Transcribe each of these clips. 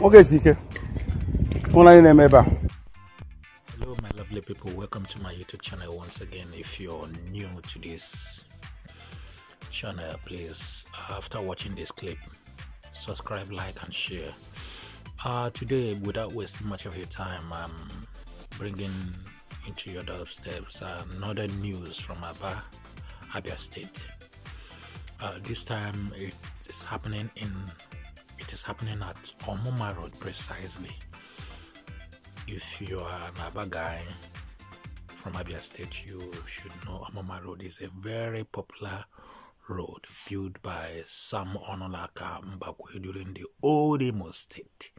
hello my lovely people welcome to my youtube channel once again if you're new to this channel please after watching this clip subscribe like and share uh, today without wasting much of your time i'm bringing into your doorsteps another news from Aba, Abia State. Uh, this time it is happening in it is happening at Omoma Road precisely. If you are an Abba guy from Abia State, you should know Omoma Road is a very popular road built by some Onolaka Mbakwe during the old Imo State.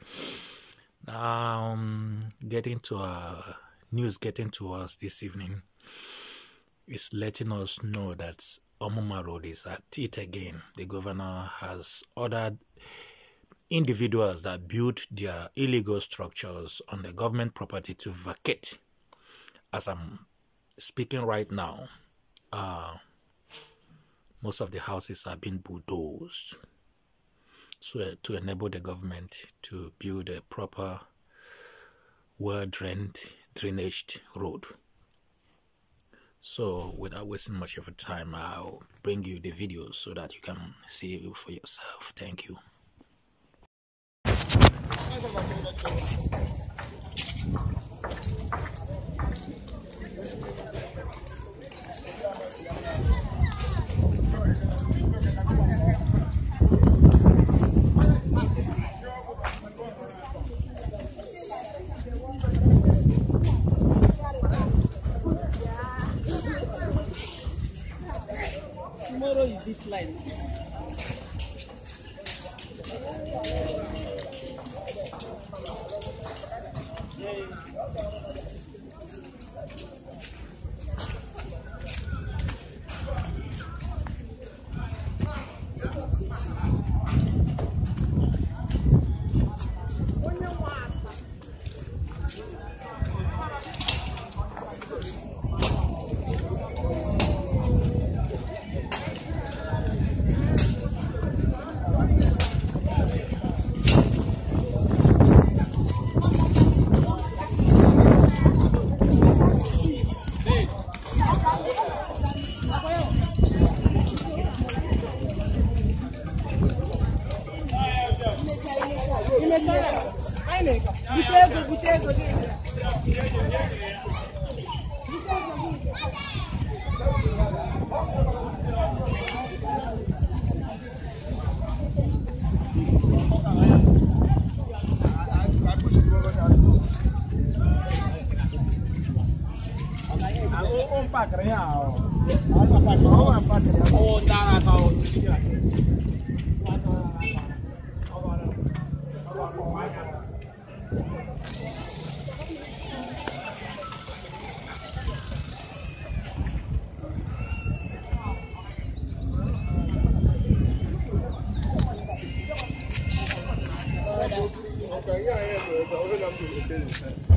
Now, um, getting to our news getting to us this evening is letting us know that Omuma Road is at it again. The governor has ordered individuals that built their illegal structures on the government property to vacate. As I'm speaking right now, uh, most of the houses are being bulldozed so, uh, to enable the government to build a proper, well drained, drainaged road. So, without wasting much of your time, I'll bring you the video so that you can see it for yourself. Thank you. Thank you. Okay. too. But.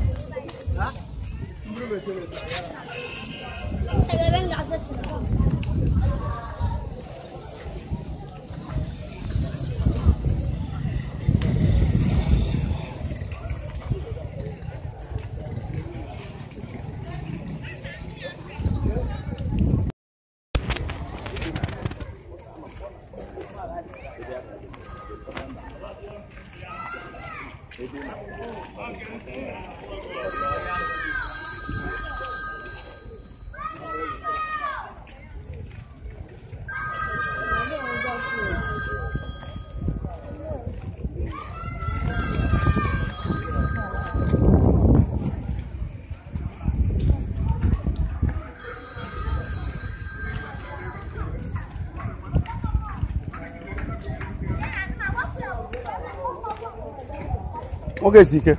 Ok nwoke esi ike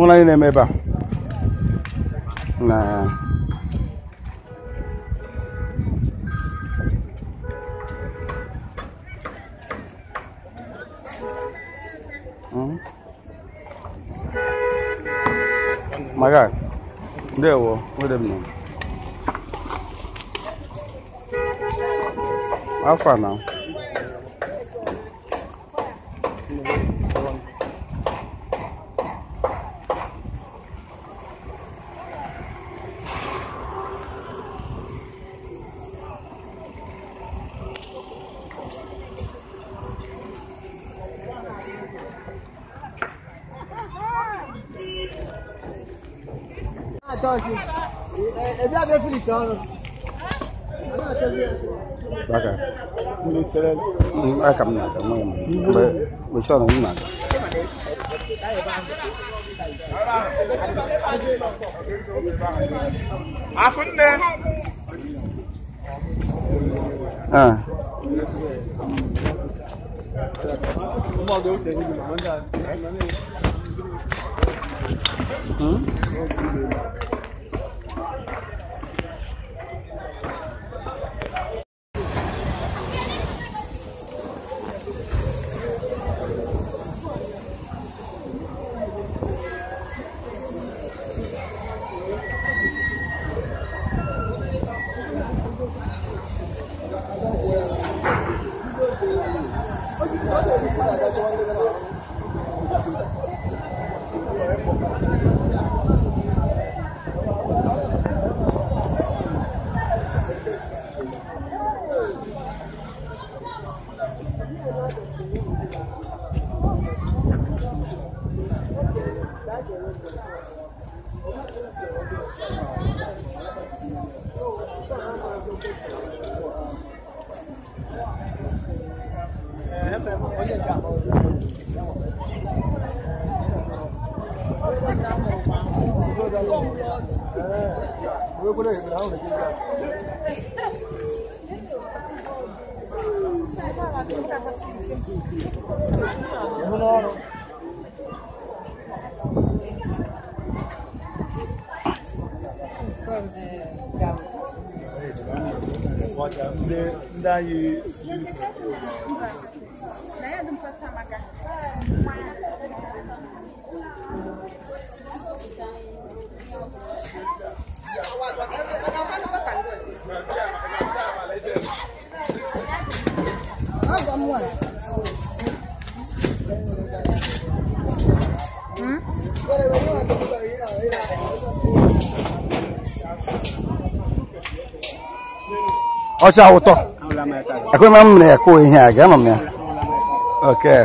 ụlọ anyị na-eme ebe a na maga hmm? ndewo nwere m afọ a Tá aqui. É, é minha vez fritando. Baka. Ai É nada, não. Vai, só não nada. Akunde. Ah. Uma deu tem que mandar. Hum? Thank you. ndị anyị ọcha ụtọ ekwe m na ya ihe a ga-ama m ya okay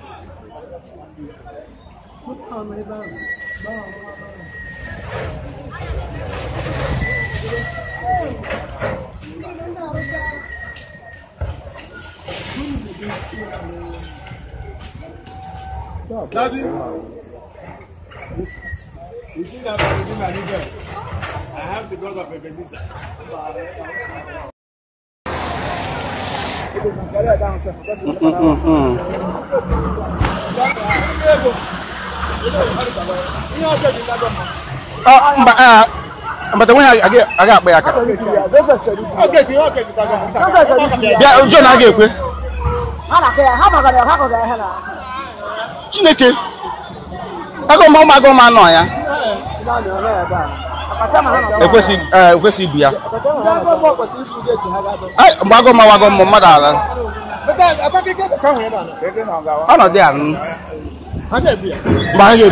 ọmọ Daddy, you see that everything I needed? I have the God of Ebenezer. Mm-mm-mm. Mgbe nwe ha aga akpa ya aka bịa John a ga-ekwe Chineke agụma ụmụ agụma anọ ya ekwesị e, ibu ya mgbe agụma wagọ mmadụ ala ọnọdụ ya Ake biya. Ba ake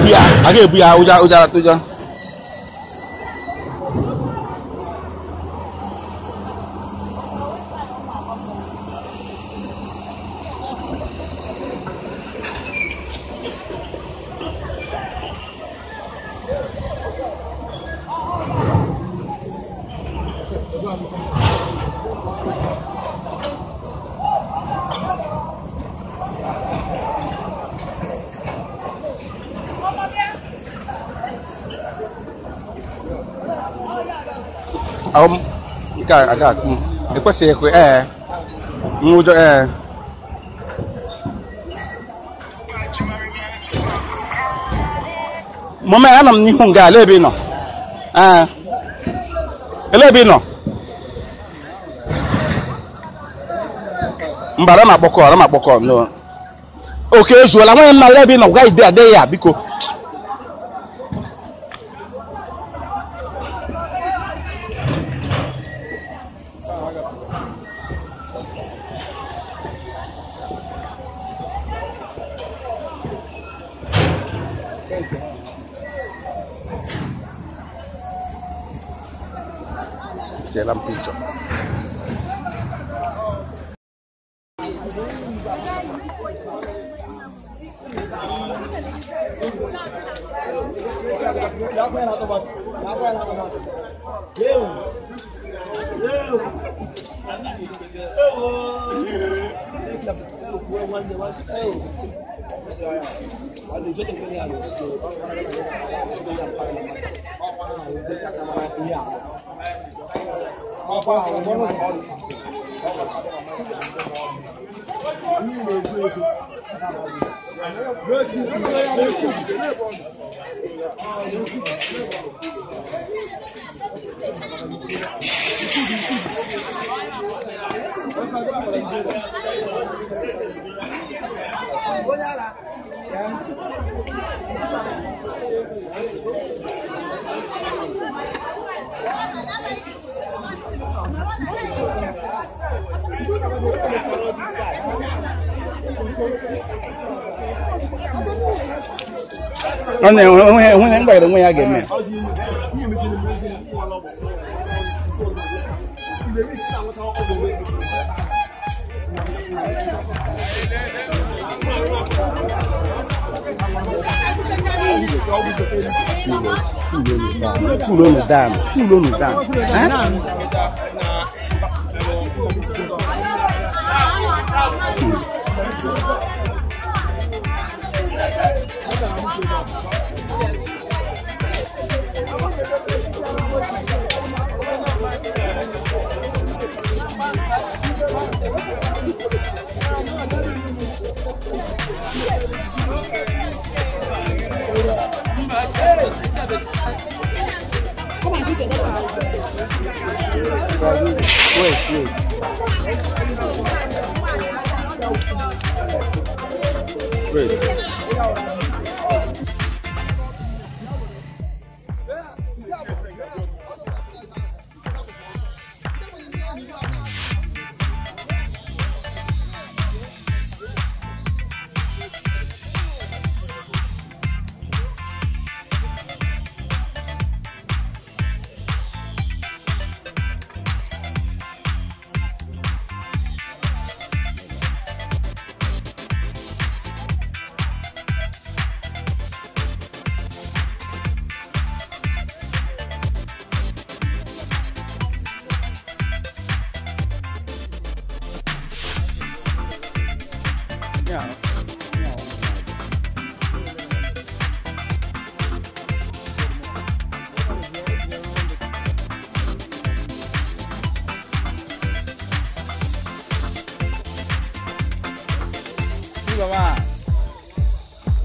biya, ake ahụ nke a ga akpụ ekwesịghị ekwe ee nwụjọ ee mama anọ m n'ihu nga ala ebe ị nọ ee ele ebe ị nọ mba ara m akpọkọ ara m akpọkọ oke ezuola nwanyị m na ala ebe ị nọ gwa ide adịghị ya biko Yapmayın otomat. Yapmayın otomat. Yev. Yev. Yev. Yev. Bóyá ra, 안돼 형이 형이 행복해 너무 해야겠네. Pulou no dama, pulou no dama. Wait, wait. Wait.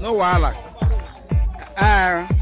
no wahala ah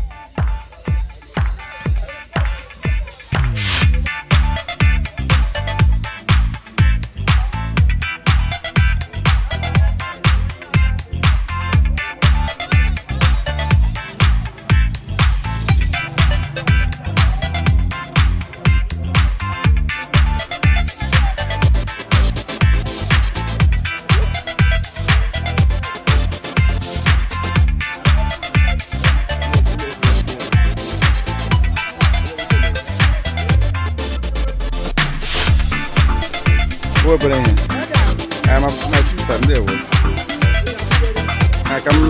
obere ihe my sister ndị ewe aka m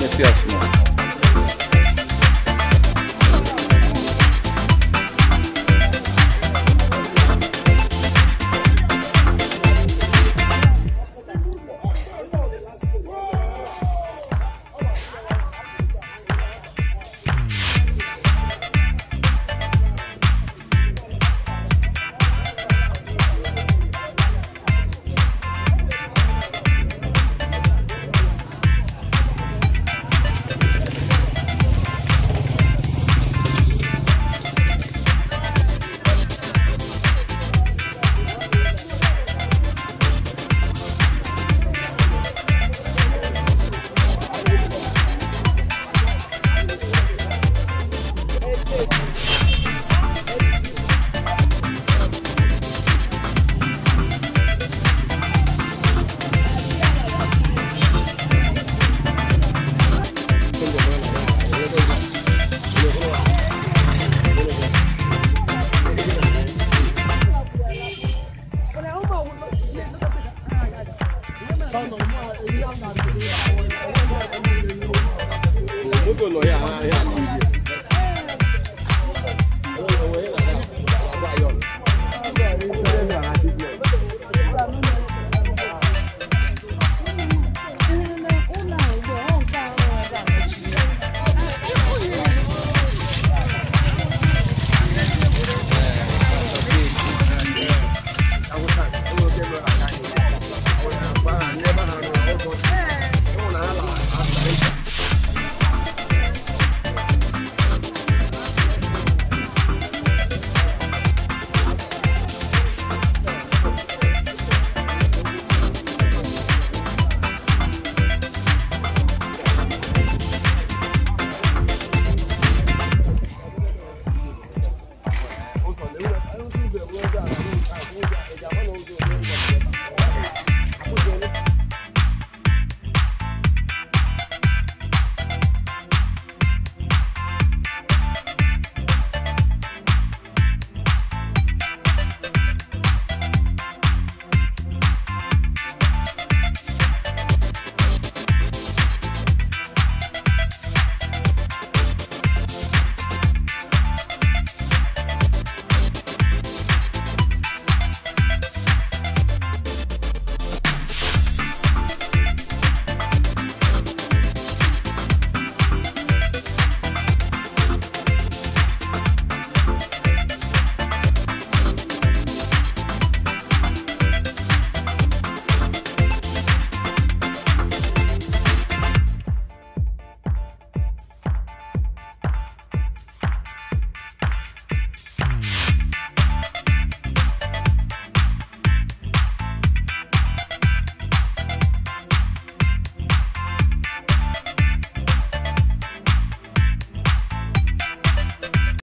metụ ya small